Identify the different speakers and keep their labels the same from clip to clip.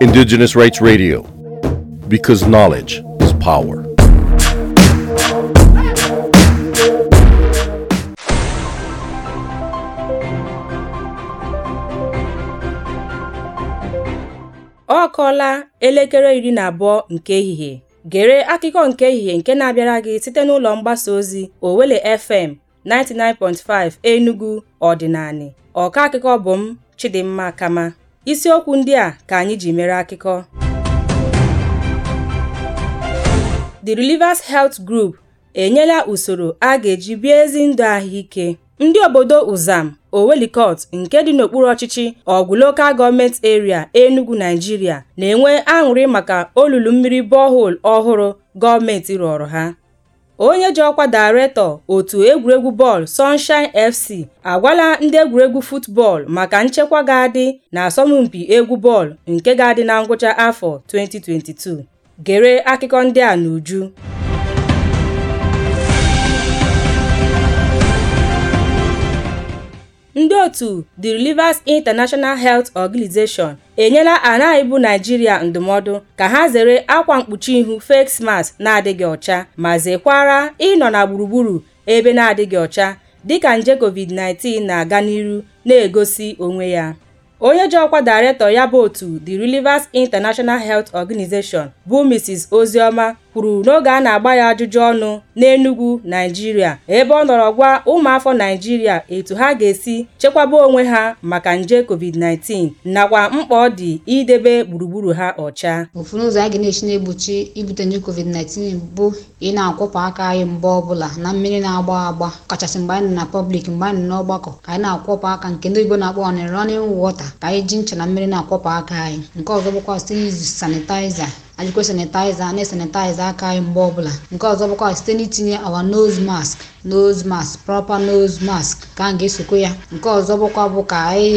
Speaker 1: Indigenous Rights Radio, because knowledge is power. ọ kọọla elekere iri na abụọ nke ehihie gere akụkọ nke ehihie nke na-abịara gị site n'ụlọ mgbasa ozi Owele FM 99.5 Enugu ọdịnani ọka akụkọ bụ m Chidimma Kama. Isiokwu ndị a ka anyị ji mere akụkọ. The relivers Health Group enyela usoro a ga-eji bie ezi ndụ ahụike. Ndị obodo Uzam, Owelikot nke dị n'okpuru ọchịchị Ogun Local gọọmenti Area, Enugu, Nigeria na-enwe aṅụrị maka olulu mmiri borehole ọhụrụ gọọmenti rụọrọ ha. Onye ji ọkwa Daịrektọ otu egwuregwu bọọlụ Sunshine FC agwala ndị egwuregwu futbọọlụ maka nchekwa ga-adị n'asọmpi egwu bọọlụ nke ga-adị na ngwụcha afọ 2022. Gere akụkọ ndị a n'uju Ndị otu The Relivas International Health Organisation enyela anaghị bụ Naịjirịa ndụmọdụ ka ha zere akwa mkpuchi ihu face mask na-adịghị ọcha ma zekwara ịnọ na gburugburu ebe na-adịghị ọcha dịka nje COVID-19 na-aga n'iru na-egosi onwe ya. Onye ji ọkwa ya bụ otu The Relievers International Health Organisation bụ Mrs. Ozioma kwuru n'oge a na-agba ya ajụjụ ọnụ n'Enugwu Naịjirịa ebe ọ nọrọ gwa ụmụafọ Naịjirịa etu ha ga-esi chekwaba onwe ha maka nje COVID-19 nakwa mkpa ọ dị idebe gburugburu ha ọcha
Speaker 2: ụfọdụ ụzọ a ga na-esi na-egbochi ibute nje COVID-19 bụ ị na-akwọpụ aka anyị mgbe ọbụla na mmiri na-agba agba kachasị mgbe anyị nọ na pọblik mgbe anyị nọ n'ọgbakọ ka anyị na-akwọpụ aka nke ndị oyibo na-akpọ ọnịrị ọnịrị wọta ka anyị ji ncha na mmiri na-akwọpụ aka anyị nke ọzọ bụkwa site n'izu sanitaiza ajụkwa sanitaiza na-esanitaiza aka anyị mgbe ọbụla nke ọzọ bụkwa site n'itinye awa nose mask nose mask proper nose mask ka a ga esokwe ya nke ọzọ bụkwa bụ ka anyị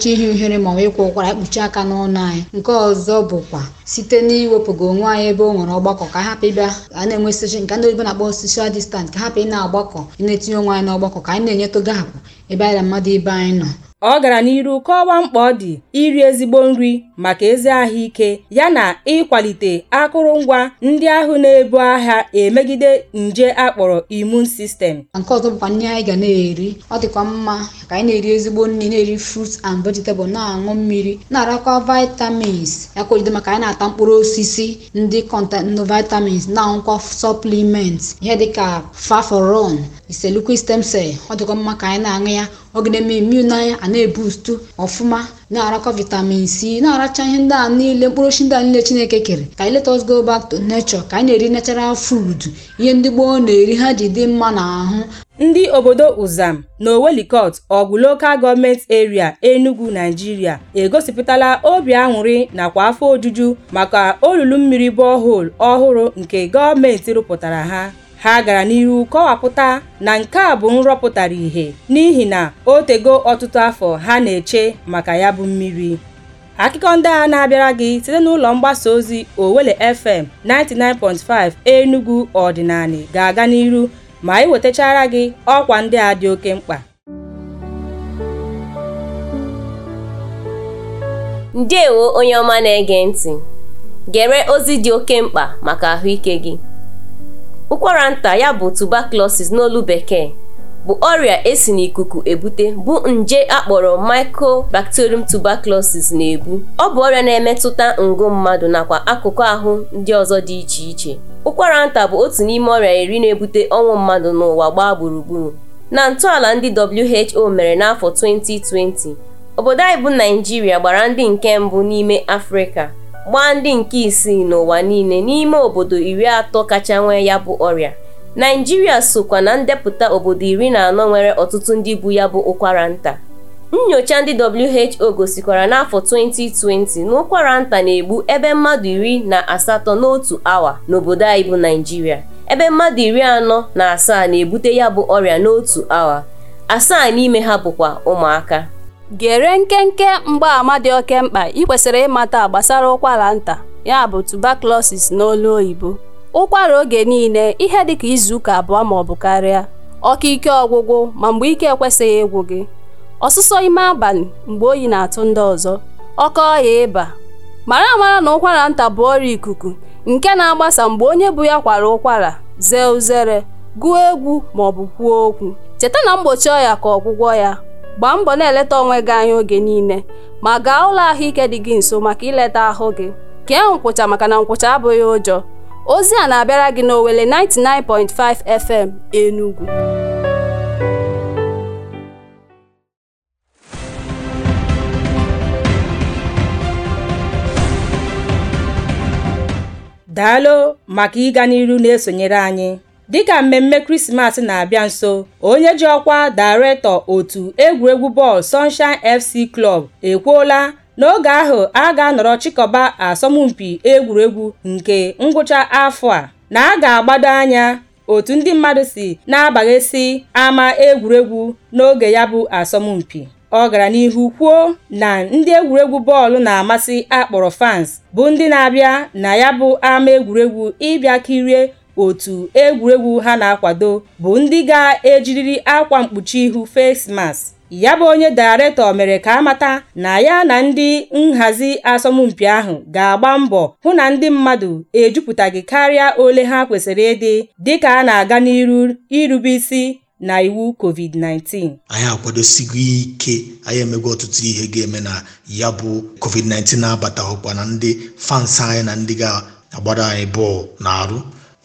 Speaker 2: chọọ ihe uhere ma ọ ịkwa ụkwara ekpuchi aka n'ọnụ anyị nke ọzọ bụkwa site n'iwepụga onwe anyị ebe o nwere ọgbakọ ka hapụ ịbịa a na-enwe soshi nke ndị oyibo na-akpọ social distance ka hapụ ị na-agbakọ ị na-etinye onwe anyị n'ọgbakọ ka anyị na-enyetoga hapụ ebe anyị na mmadụ ibe anyị nọ Ọ gara n'ihu
Speaker 1: kọwaa mkpa ọ dị iri ezigbo nri maka ezi ahụike yana ịkwalite akụrụngwa ndị ahụ na-ebu agha emegide nje akpọrọ immune
Speaker 2: system. Nke ọzọ bụkwa nri anyị ga na-eri ọ dịkwa mma ka anyị na-eri ezigbo nri na-eri frut and vegetable na-aṅụ mmiri na-arakwa vitamins yakwalite maka anyị na-ata mkpụrụ osisi ndị kọntenụ vitamins na-aṅụkwa supplements ihe dịka faforon iselukwu stem cell ọ dịkwa mma ka anyị na-aṅụ ya ọgịneme immune anyị a na-ebustu ọfụma na-arakọ vitamin c na-aracha ihe ndị a niile mkpụrụ osisi ndị a niile chineke kere ka anyị let go back to nature ka anyị na-eri natural food ihe ndị gboo na-eri ha ji dị mma n'ahụ
Speaker 1: ndị obodo Uzam na Owelikot ọgụ gọọmenti Government Area Enugu Nigeria egosipụtala obi aṅụrị nakwa afọ ojuju maka olulu mmiri bọhol ọhụrụ nke gọọmenti rụpụtara ha ha gara n'ihu kọwapụta na nke a bụ nrọpụtara ihe n'ihi na o tego ọtụtụ afọ ha na-eche maka ya bụ mmiri akụkọ ndị a na-abịara gị site n'ụlọ mgbasa ozi Owele FM 99.5 Enugu ọdịnali ga-aga n'iru ma wetachara gị ọkwa ndị a dị oke mkpa ndewo onye ọma na-ege ntị gere ozi dị oke mkpa maka ahụike gị ụkwara nta ya bụ tuberculosis n'olu bekee bụ ọrịa esi n'ikuku ebute bụ nje akpọrọ mycobacterium tuberculosis na-ebu ọ bụ ọrịa na-emetụta ngụ mmadụ nakwa akụkụ ahụ ndị ọzọ dị iche iche ụkwara nta bụ otu n'ime ọrịa iri na-ebute ọnwụ mmadụ n'ụwa gbaa gburugburu na ntọala ndị WHO mere n'afọ 2020 obodo anyị bụ Naijiria gbara ndị nke mbụ n'ime Afrịka gbaa ndị nke isii n'ụwa niile n'ime obodo iri atọ kacha nwee ya bụ ọrịa naijiria sokwa na ndepụta obodo iri na anọ nwere ọtụtụ ndị bụ ya bụ ụkwara nta nnyocha ndị WHO gosikwara n'afọ 2020 na ụkwara nta na-egbu ebe mmadụ iri na asatọ n'otu awa n'obodo anyị bụ naijiria ebe mmadụ iri anọ na asaa na-ebute ya bụ ọrịa n'otu awa asaa n'ime ha bụkwa ụmụaka gere nkenke mgbaama dị oke mkpa ị kwesịrị ịmata gbasara ụkwara nta ya bụ tuberculosis n'olu oyibo ụkwara oge niile ihe dịka izuụka abụọ maọbụ karịa ọkụ ike ọgwụgwụ ma mgbe ike ekwesịghị ịgwụ gị ọsụsọ ime abalị mgbe oyi na-atụ ndị ọzọ ọkọ ọya ịba mara amara na ụkwara nta bụ ọrịa ikuku nke na-agbasa mgbe onye bụ ya kwara ụkwara zee uzere gụọ egwu maọbụ kwuo okwu cheta na mgbochi ọya ka ọgwụgwọ ya gbaa mbọ na-eleta onwe gị anya oge niile ma gaa ụlọ ahụike dị gị nso maka ileta ahụ gị kee nkwụcha maka na nkwụcha abụghị ụjọ ozi a na-abịara gị na n'Owere 99.5 FM Enugu daalụ maka ịga n'iru na-esonyere anyị Dịka mmemme Krismas na-abịa nso, onye ji ọkwa Daịrektọ otu egwuregwu bọọlụ Sunshine FC klọb ekwuola n'oge ahụ a ga-anọrọ chịkọba asọmpi egwuregwu nke ngwụcha afọ a, na a ga-agbado anya otu ndị mmadụ si na-abaghesị ama egwuregwu n'oge ya bụ asọmpi. Ọ gara n'ihu kwuo na ndị egwuregwu bọọlụ na-amasị akpọrọ fans bụ ndị na-abịa na ya bụ ama egwuregwu ịbịa kirie otu egwuregwu ha na-akwado bụ ndị ga ejiriri akwa mkpuchi ihu face ya bụ onye daịrektọ mere ka amata na ya na ndị nhazi asọmpi ahụ ga-agba mbọ hụ na ndị mmadụ ejupụtaghị karịa ole ha kwesịrị ịdị dịka a na-aga n'iru irube isi na iwu covid-19
Speaker 2: anyị akwadosigo ike anyị emego ọtụtụ ihe
Speaker 1: ga-eme na ya bụ covid-19 na-abata ụkwa na ndị fans anyị na ndị ga-agbara anyị bọọlụ na arụ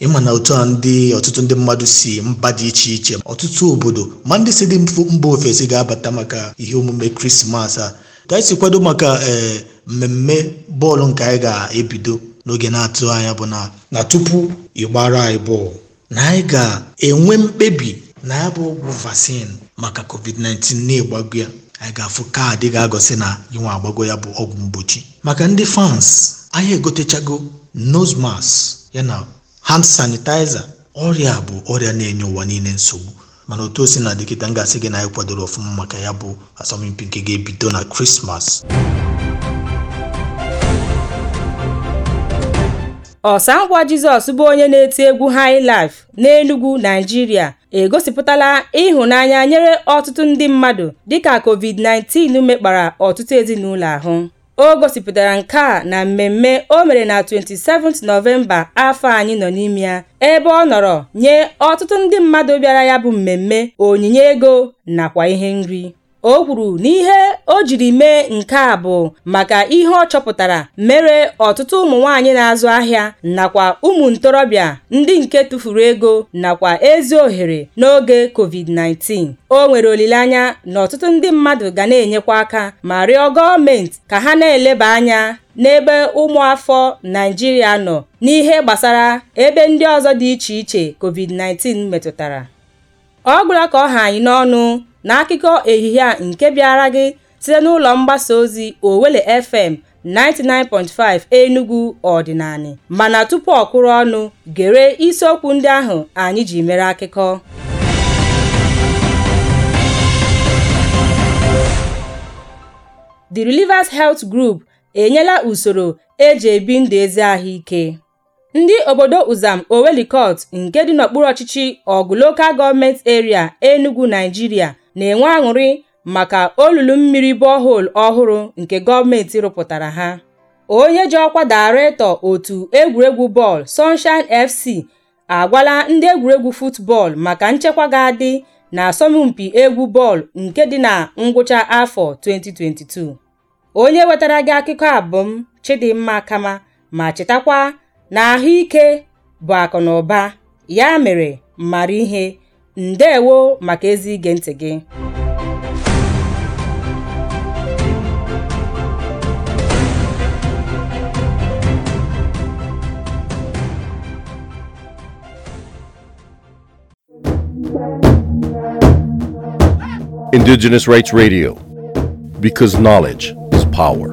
Speaker 1: ịma na otu a ndị ọtụtụ ndị mmadụ si mba dị iche iche ọtụtụ obodo ma ndị si dị mba ofesi ga-abata maka ihe omume krismas a ka anyị si kwado maka ee eh, mmemme bọọlụ nke anyị ga-ebido n'oge na-atụ anya bụ na na tupu ịgbara anyị bọọlụ na anyị ga-enwe mkpebi na ya bụ ọgwụ vaccine maka covid-19 na-egbago ya anyị ga-afụ kaadị ga-agọsị na inwe agbago ya bụ ọgwụ mgbochi maka ndị fans anyị egotechago nosmas mask na. hand sanitaiza ọrịa bụ ọrịa na-enye ụwa niile nsogbu mana otu osi na dịkịta ngasị gị na anyị kwadoro ọfụma maka ya bụ asọmpi nke ga-ebido na krismas ọsa ngwa jizọs bụ onye na-eti egwu highlife n'enugwu naijiria egosipụtala ịhụnanya nyere ọtụtụ ndị mmadụ dịka covid-19 mekpara ọtụtụ ezinụlọ ahụ O gosipụtara nke a na mmemme o mere na 27 th Nọvemba afọ anyị nọ n'ime ya ebe ọ nọrọ nye ọtụtụ ndị mmadụ bịara ya bụ mmemme onyinye ego nakwa ihe nri. O kwuru na ihe o jiri mee nke a bụ maka ihe ọ chọpụtara mere ọtụtụ ụmụ nwanyị na-azụ ahịa nakwa ụmụ ntorobịa ndị nke tụfuru ego nakwa ezi ohere n'oge COVID-19. O nwere olileanya na ọtụtụ ndị mmadụ ga na-enyekwa aka ma rịọ gọọmenti ka ha na-eleba anya n'ebe ụmụafọ Naijiria nọ n'ihe gbasara ebe ndị ọzọ dị iche iche COVID-19 metụtara. Ọ gwụla ka ọ ha anyị n'ọnụ na akụkọ ehihie a nke bịara gị site n'ụlọ mgbasa ozi Owele FM 99.5 Enugu Ọdịnala, mana tupu ọ kwụrụ ọnụ, gere isiokwu ndị ahụ anyị ji mere akụkọ. The relivas Health Group enyela usoro eji ebi ndụ ezi ahụike. Ndị obodo Uzam Owelikot nke dị n'okpuru ọchịchị ọgụ lokal gọọmenti eria Enugu, naijiria na-enwe aṅụrị maka olulu mmiri borehole ọhụrụ nke gọọmenti rụpụtara ha. Onye ji ọkwa daretọ otu egwuregwu bọọlụ Sunshine FC agwala ndị egwuregwu futbọọlụ maka nchekwa ga-adị asọmpi egwu bọọlụ nke dị na ngwụcha afọ 2022. Onye wetara gị akụkọ abụm Chidimma Kama ma chetakwa na ahụike bụ akụ na ụba ya mere mara ihe. ndewo maka ezi ige ntị gị Indigenous Rights Radio, because knowledge is power.